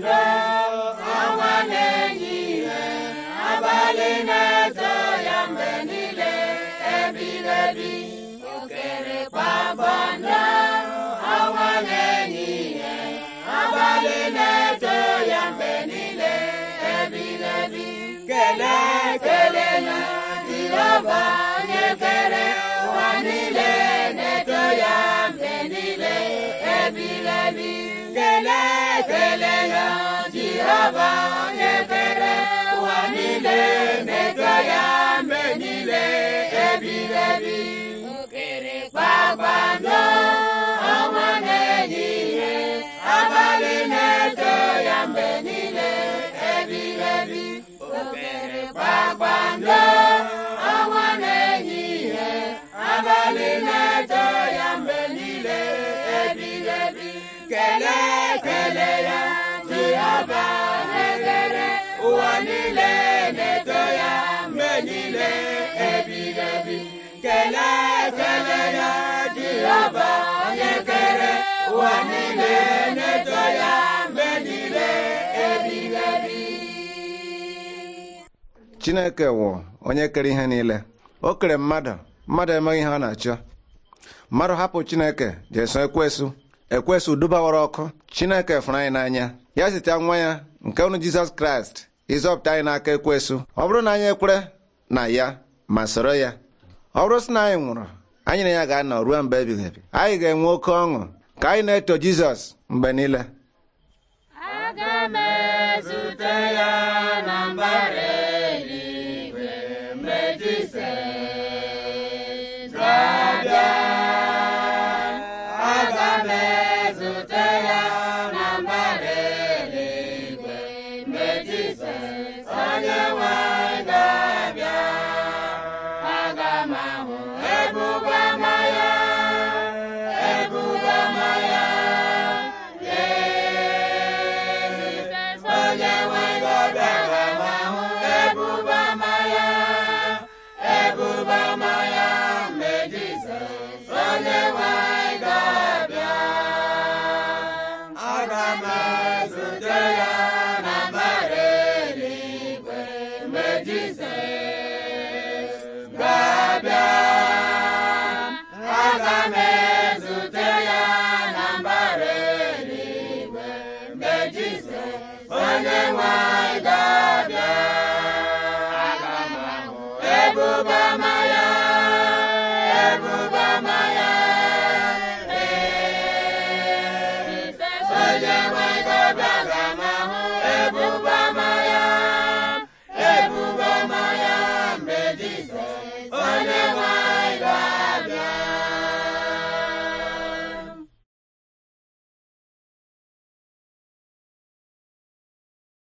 ndụ ọnwa na-enye ihe abalị na-eto ya mgbe niile ebirebi okerekpa gbanda ọnwa na-enye ihe abalị na-eto ya mgbe niile ebirebi kelee kelee na dịrọba onye kere na-eto ya mgbe niile ebirebi kelee raba onye ebere ụwa niile mejọ ya mgbe niile ebiri ebi mkpịrịkpakpando ọnwa na-ehihie abalị na-eto ya mgbe niile ebiri ebi mkpịrịkpakpando ọnwa na abalị na-eto ya mgbe niile ebiri ebi kelee niile ebighị ebi kelee ekele ya jehova onye kere ụwa niile na-eto ya mgbe niile ebighị ebi chineke wụ onye kere ihe niile o kere mmadụ mmadụ emeghị ihe ọ na-achọ mmadụ hapụ chineke jeso ekwesu ekwesu dubawara ọkụ chineke fụrụ anyị n'anya ya zite nwa ya nke unu jizọs kraịst ịzọpụta anyị n'aka ekwesu ọ bụrụ na anyị ekwere na ya ma sọrọ ya ọ bụrụ sị na anyị nwụrụ anyị na ya ga-anọ ruo mgbe ebighị ebi anyị ga-enwe oke ọṅụ ka anyị na-eto Jizọs mgbe niile aga m ezute ya na mbara eluigwe mgbe Jizọs ga ezute ya na mbara eluigwe mgbe Jizọs Jizọs